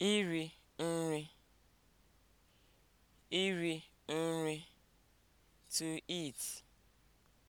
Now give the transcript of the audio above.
iri nri iri nri (to eat)